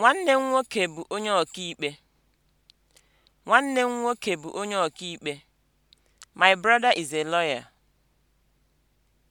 Nwanne m nwoke bụ onye ọkaikpe. Nwanne My brother is a lawyer.